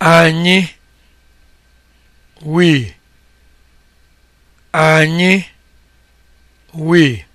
anyị we anyị we